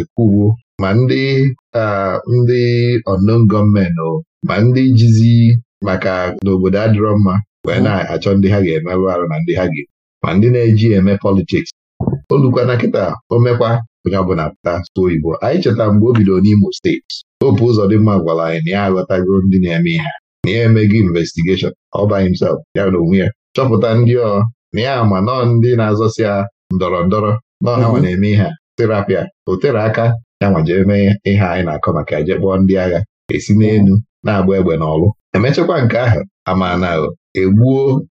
ekwuruo e, e, e, ma ndị ndị ọndọm gọọmenti ma ndị jizi maka n'obodo adịrọ mma wee na-achọ ndị ha ga-emerụ arụ na ndị ha ga ma ndị na-eji eme politiks olukwana nkịta omekwa onye bụ na pụta so oyibo anyị cheta mgbe o bidoro n'Imo steeti opu ụzọ dị mma gwara anyị na ya aghọtago ndị na-eme ihe na ya emego investigeshọn ọba by himself ya na onwe ya chọpụta ndị ọ na ya ma nọ ndị na-azọsi ya ndọrọ ndọrọ nọọ ha mhm. na-eme ihe a terapia o tere aka ya nwa jee mee ihe anyị na-akọ maka eje kpọọ ndị agha esi n'elu na-agba egbe n'ọlụ emechakwa nke ahụ ama na egbuo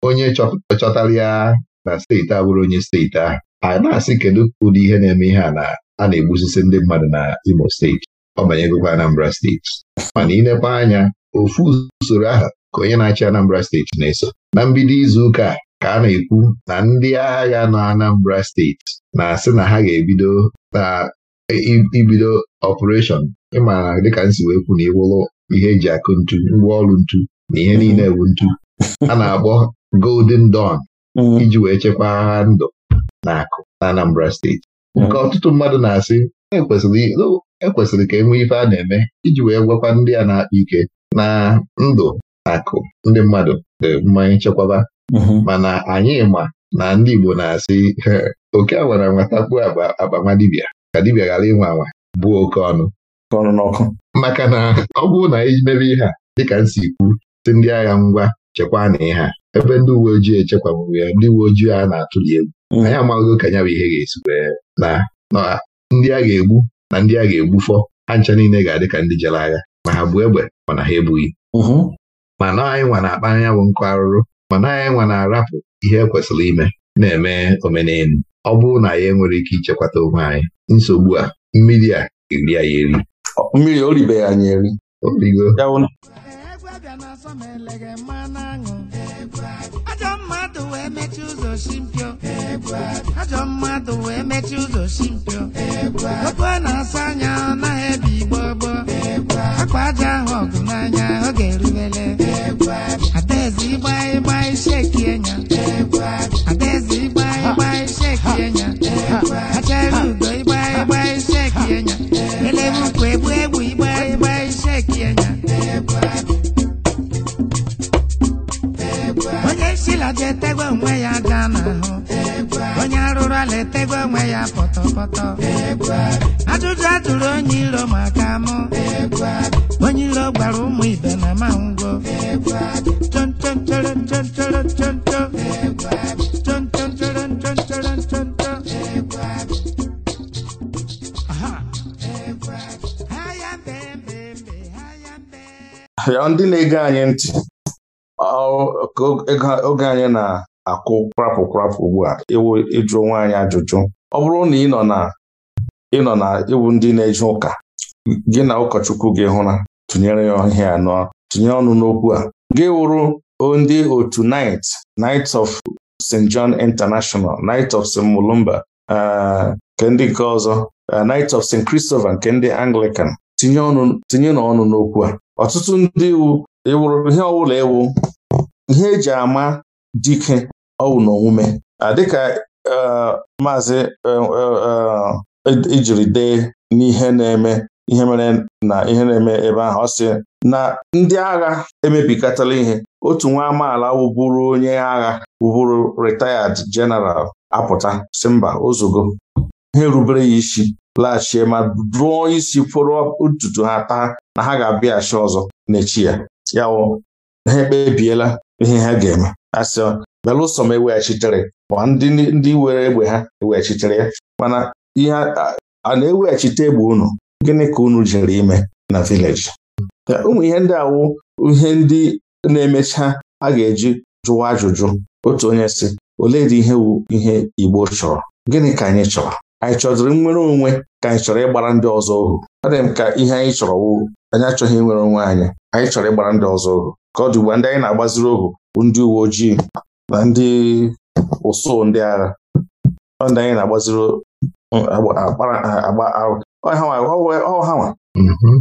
onye chọtara ya na steeti abụrụ onye steeti ahụ a na-asị kedu ụdị ihe na-eme ihe a na a na-egbusisi ndị mmadụ na Imo steeti ọ banyegokwa Anambra steeti mana ilekwa anya ofu usoro ahụ ka onye na-achị Anambra steeti na-eso na mbido izu ụka ka a na-ekwu na ndị agha na Anambra steeti na-asị na ha ga-ebido na ibido ọpụreshọn ịmara dịka nsi si wee kwu na ịwụlụ ihe eji akụ ntu ngwaọrụ ntu na ihe niile bụ ntu a na-akpọ Golden Dawn mm. iji wee chekwaa agha ndụ na akụ na Anambra steeti mm. nke ọtụtụ mmadụ na-asị ekwesịrị e ka e nwee ife a na-eme iji wee gwakwa ndị a na-akpa ike na ndụ na akụ ndị mmadụ dị mmanya nchekwaba mm-hmm. mana anyị ma na ndị Igbo na-asị oke awara nwatakpu agba nwa ka dibia ghara ịnwe anwa buo oke ọnụ ọnụ n'ọkụ. maka na ọ bụrụ na emebe ihe a dịka nsi ikwu si ndị agha ngwa chekwa na ihe a ebe ndị uwe ojii echekwabụrụ ya ndị uwe ojii a na-atụli egwu mm. anyị amaghị ka ya bụ ihe ga-esi na ndị a ga-egbu na ndị a ga-egbufọ ha ncha niile ga-adị ka ndị jere agha ma ha bụ egbe mana ha ebughị mm-hmm. na anyị nwa na-akpa anya bụ nkụ arụrụ ma na anyị nwa na-arapụ ihe ekwesịrị ime na-eme omenelu ọ bụrụ na ya enwere ike ichekwata onwe anyị nsogbu a mmiri a eri anyị eri mmiri oribeghị anyị eri ajọ mmadụ wee mechie ụzọ simpio ajọ wee mechie ụzọ simpio okwu a na asa anya ọ naghị ebi igbo gboo akwa aja ahụ ọgụ n'anya ọ ga-erubele adaeze ịgba ịgba isi eki adaeze ịgba ugo ịgba ịgba iseki ukwu egbu egbu ịgba ịgba iseki onye sila ga onwe ya ga n'ahụ onye arụrụ ala etegwa onwe ya pọtọpọtọ ajụjụ a onye iro onye iro ụmụ na ya ndị na-ege anyị ntị oge anyị na-akụ kwapụ kwapụ ugbu a iwu ịjụ onwe ajụjụ ọ bụrụ na ị nọ na ịnọ na iwu ndị na-eje ụka gị na ụkọchukwu gị na tụnyere ya ihe anọ tụnyere ọnụ n'okwu a gị wụrụ ndị otu Night Night of St. John International Night of St. Mulumba eh, nke ndị nke ọzọ eh, Night of St. Christopher nke ndị Anglican tinye n'ọnụ n'okwu a ọtụtụ ndị iwu ịwụrụ ihe ọwụla ewu ihe eji ama dike ọwụ na omume dịka e, maazị ejiri e, e, dee n'ihe na-eme ihe mere na ihe na-eme ebe ahụ ọ sị na ndị agha emebikatala ihe otu nwa amaala wụbụrụ onye agha wụbụrụ retired general apụta si mba ozugo ha erubere ya isi laghachie ma dụọ isi kwụrụ ntutu ha taa na ha ga-abịaghachi ọzọ n'echi ya ya wụ ha ekpebiela ihe ha ga-eme asị belụsọ m eweghachitere ma ndị ndị were egbe ha eweghachitere ya mana ihe a na-eweghachite egbe unu gịnị ka unu jiri ime na vileji ụmụ ihe ndị awụ ihe ndị na-emecha a ga-eji jụwa ajụjụ otu onye si ole dị ihe wu ihe Igbo chọrọ gịnị ka anyị chọrọ anyị chọziri nnwere onwe ka anyị chọrọ ịgbara ndị ọzọ ohu ọ dịghị m ka ihe anyị chọrọ wụ anyị achọghị nwere onwe anyị anyị chọrọ ịgbara ndị ọzọ ohu ka ọ dị ugbu ndị anyị na-agbaziri ohu bụ ndị uwe ojii na ndị ụsụ ndị agha ọ ndị anyị na-agbaziri ọhanwa mm-hmm.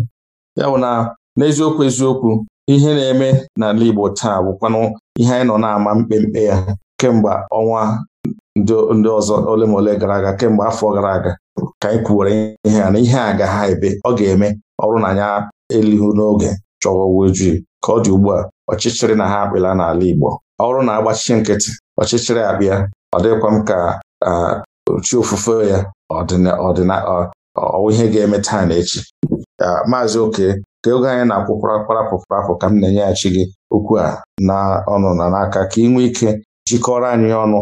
ya bụ na n'eziokwu eziokwu ihe na-eme n'ala Igbo taa bụkwanụ ihe anyị nọ na-ama mkpemkpe ya kemgbe ọnwa ndị ọzọ ole ma ole gara aga kemgbe afọ gara aga ka anyị kwuwere ihe a na ihe a ga ha ebe ọ ga-eme ọrụ na anya elihu n'oge chọwa ojii ka ọ dị ugbu a ọchịchịrị na ha akpịla n'ala Igbo ọrụ na-agbachi nkịtị ọchịchịrị abịa ọ dịkwa m ka chi ofufe ya ọwụ ihe ga-eme taa na echi maazị oke ka oge anyị na-akwụkwara kparapụkparapụ ka m na-enyeghachi gị okwu a na ọnụ na n'aka ka ị nwee ike jikọrọ anyị ọnụ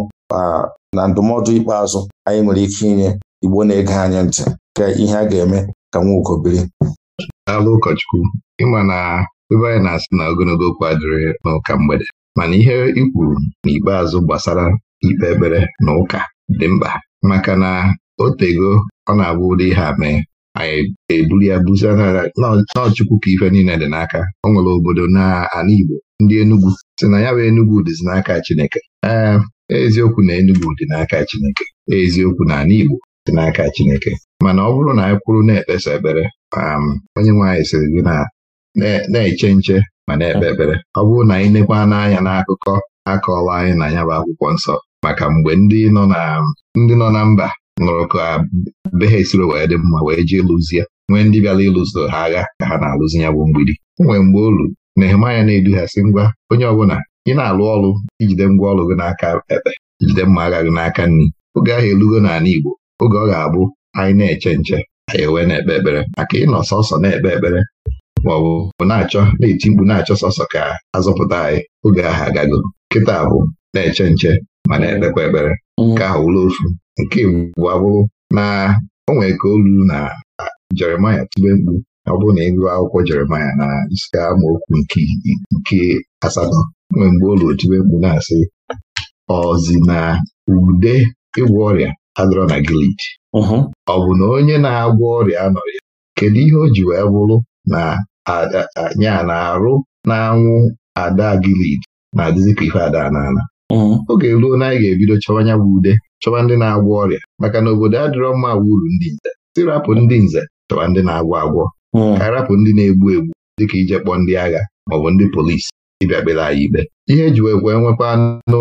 na ndụmọdụ ikpeazụ anyị nwere ike inye Igbo na-ege anyị ntị ka ihe a ga-eme ka Nwaugo biri daalụ ụkọchukwu ịma na ebe anyị na-asị na ogologo okwu adịrị n'ụka mgbede mana ihe ikwuru n'ikpeazụ gbasara ikpe ekpere na ụka dị mkpa maka na otego ọ na-abụ ụdị ihe a mee anyị eburu ya buzie n'ọchukwu ka ife niile dị n'aka o nwere obodo n'ala Igbo ndị Enugwu si na ya bụ Enugwu dịzi n'aka Chineke ee eziokwu na Enugwu dị n'aka Chineke eziokwu na ala Igbo dị n'aka Chineke mana ọ bụrụ na anyị kwuru na-ekpesa ekpere um, onye nwe anyị sịrị gị na-eche nche ma na-ekpe ekpere ọ bụrụ na anyị nekwa n'anya n'akụkọ akọọla anyị na ya bụ akwụkwọ nsọ maka mgbe ndị nọ na mba nụrụ ka be ha esiri wee dị mma wee jee lụzie nwee ndị bịara ịlụzo ha agha ka ha na-alụzi ya bụ mgbidi nwee mgbe olu Nehemaya na-edu ha ngwa onye ọbụla ị na-alụ ọrụ ijide ngwa ọrụ gị n'aka ekpe jide mma agha gị n'aka nri oge ahụ elugo n'ala Igbo oge ọ ga-abụ anyị na-eche nche anyị ewee na-ekpe ekpere maka ịnọ sọsọ na-ekpe ekpere ma ọ bụ na-achọ na-eti mkpu na-achọ sọsọ ka azọpụta anyị oge ahụ agago nkịta bụ na-eche nche ma na-ekpekwa ekpere mm. nke ahụ wụrụ ofu nke bụ abụrụ na o nwere ka olu na Jeremaya tube mkpu ọ bụrụ na ịgụ akwụkwọ Jeremaya na isi amaokwu nke asatọ nwee mgbe ụlọ otibe mkpu na-asị ọzi na ude ịgwọ ọrịa adọrọ na gilid. ọ bụ na onye na-agwọ ọrịa anọghị ya kedu ihe o ji wee bụrụ na anya na-arụ na-anwụ ada gilid na-adịzi ka ife ada n'ala oge ruo na anyị ga-ebido chọwa anya bụ ude chọwa ndị na-agwọ ọrịa maka na obodo adịrọ mma wuru ndị nze sirapụ ndị nze chọwa ndị na-agwọ agwọ Hmm. ka arapụ ndị na-egbu egbu dịka ije kpọọ ndị agha maọbụ ndị polisi ịbịa kpere anyị ikpe ihe eji wee kwee nwekwa anụ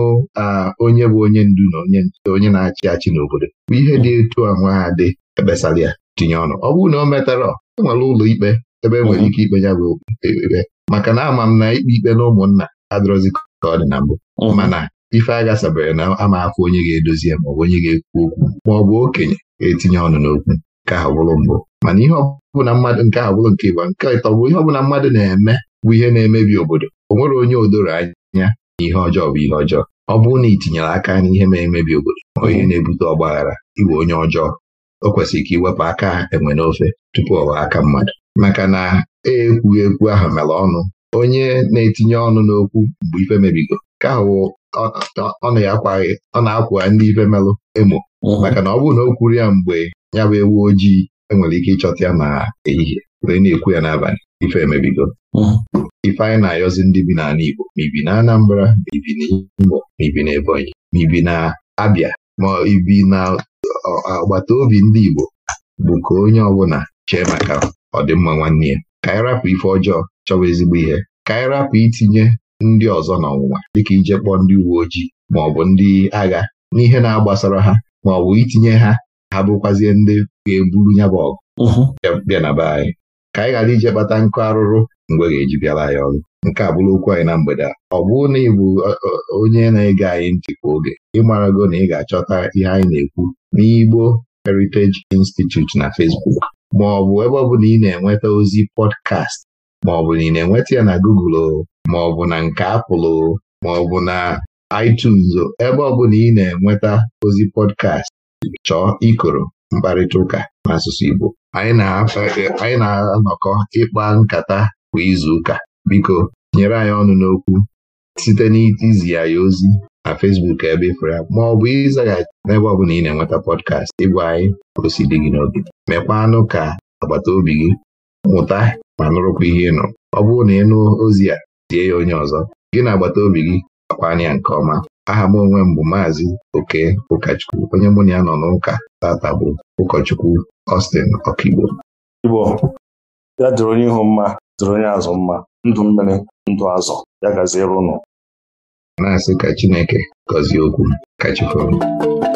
onye bụ onye ndu na onye onye na-achị achị n'obodo bụ ihe dị etu ahụ ha dị ekpesara ya tinye ọnụ ọ bụrụ na o metara e nwere ụlọ ikpe ebe e nwere ike ikpe ya bụ ekpe maka na ama m na ikpe ikpe na ụmụnna adịrọzi ka ọ dị na mbụ hmm. mana ife agha sabere na ama afọ onye ga-edozi ya maọbụ onye ga-ekwu okwu maọbụ okenye ga-etinye ọnụ n'okwu nke a bụrụ mbụ mana ihe ọbụla mmadụ nke a bụrụ nke ịgba nke ịtọ bụ ihe ọbụla mmadụ na-eme bụ ihe na-emebi obodo o nwere onye odoro anya na ihe ọjọọ bụ ihe ọjọọ ọ bụrụ na ị tinyere aka n'ihe na-emebi obodo onye hmm. na-ebute ọgbaghara iwe onye ọjọọ o kwesịrị ka iwepụ aka enwe n'ofe tupu ọwa aka mmadụ maka na e ekwughị ekwu ahụ mere ọnụ onye na-etinye ọnụ n'okwu mgbe ife mebigo ka ahụ ọ na-akwa ndị ife melụ emo hmm. maka na ọ bụrụ na o kwuru ya mgbe ya bụ ewu ojii enwere ike ịchọta ya na ehihie wee na-ekwu ya n'abalị ife emebigo mhm. ife anyị na-ayọzi ndị bi n'ala Igbo ma ibi na Anambra ma ibi n'Imo ma ibi n'Ebonyi ma ibi na Abia ma ibi na agbata obi ndị Igbo bụ ka onye ọbụla chee maka ọdịmma nwanne ya ka anyị rapụ ife ọjọọ chọwa ezigbo ihe ka anyị rapụ itinye ndị ọzọ n'ọnwụnwa dịka ije kpọọ ndị uwe ojii ma ọ bụ ndị agha n'ihe na-agbasara ha ma ọ bụ itinye ha ha bụkwazie ndị ga-eburu ya bụ ọgụ uh-huh. bịa na be anyị ka anyị ghara ije kpata nkụ arụrụ mgbe ga-eji bịara anyị ọrụ nke a bụrụ okwu anyị na mgbede a ọ bụrụ na ị bụ onye na-ege anyị ntị oge ịmarago na ị ga-achọta ihe anyị na-ekwu n'Igbo Heritage Institute na Facebook ma ọ bụ ebe ọ bụla ị na-enweta ozi pọdkast ma ọ bụ na ị na-enweta ya na Google ma ọ bụ na nke apụl ma ọ bụ na iTunes ebe ọ bụla ị na-enweta ozi pọdkast chọọ ikoro mkparịta ụka n'asụsụ Igbo anyị na-anọkọ ịkpa nkata kwa izuụka biko nyere anyị ọnụ n'okwu site n'izi anyị ya ozi na Fesbuk ebe ịfụrụ ya ma ọ bụ ịzaghachi n'ebe ọ bụla ị na-enweta pọdkast ịgwa anyị o si gị n'obi mekwanụ ka agbata obi gị mụta ma nụrụkwa ihe ị ọ bụrụ na ị nụ ozi a tie ya onye ọzọ gị na agbata obi gị akpa anya nke ọma aha m onwe mbụ bụ maazị oke ụkọchukwu onye mụ na ya nọ n'ụka tata bụ ụkọchukwu Austin Okigbo Igbo ya dịrị onye ihu mma dịrị onye azụ mma ndụ mmiri ndụ azụ ya gazie A na-asị ka Chineke gọzie okwu ka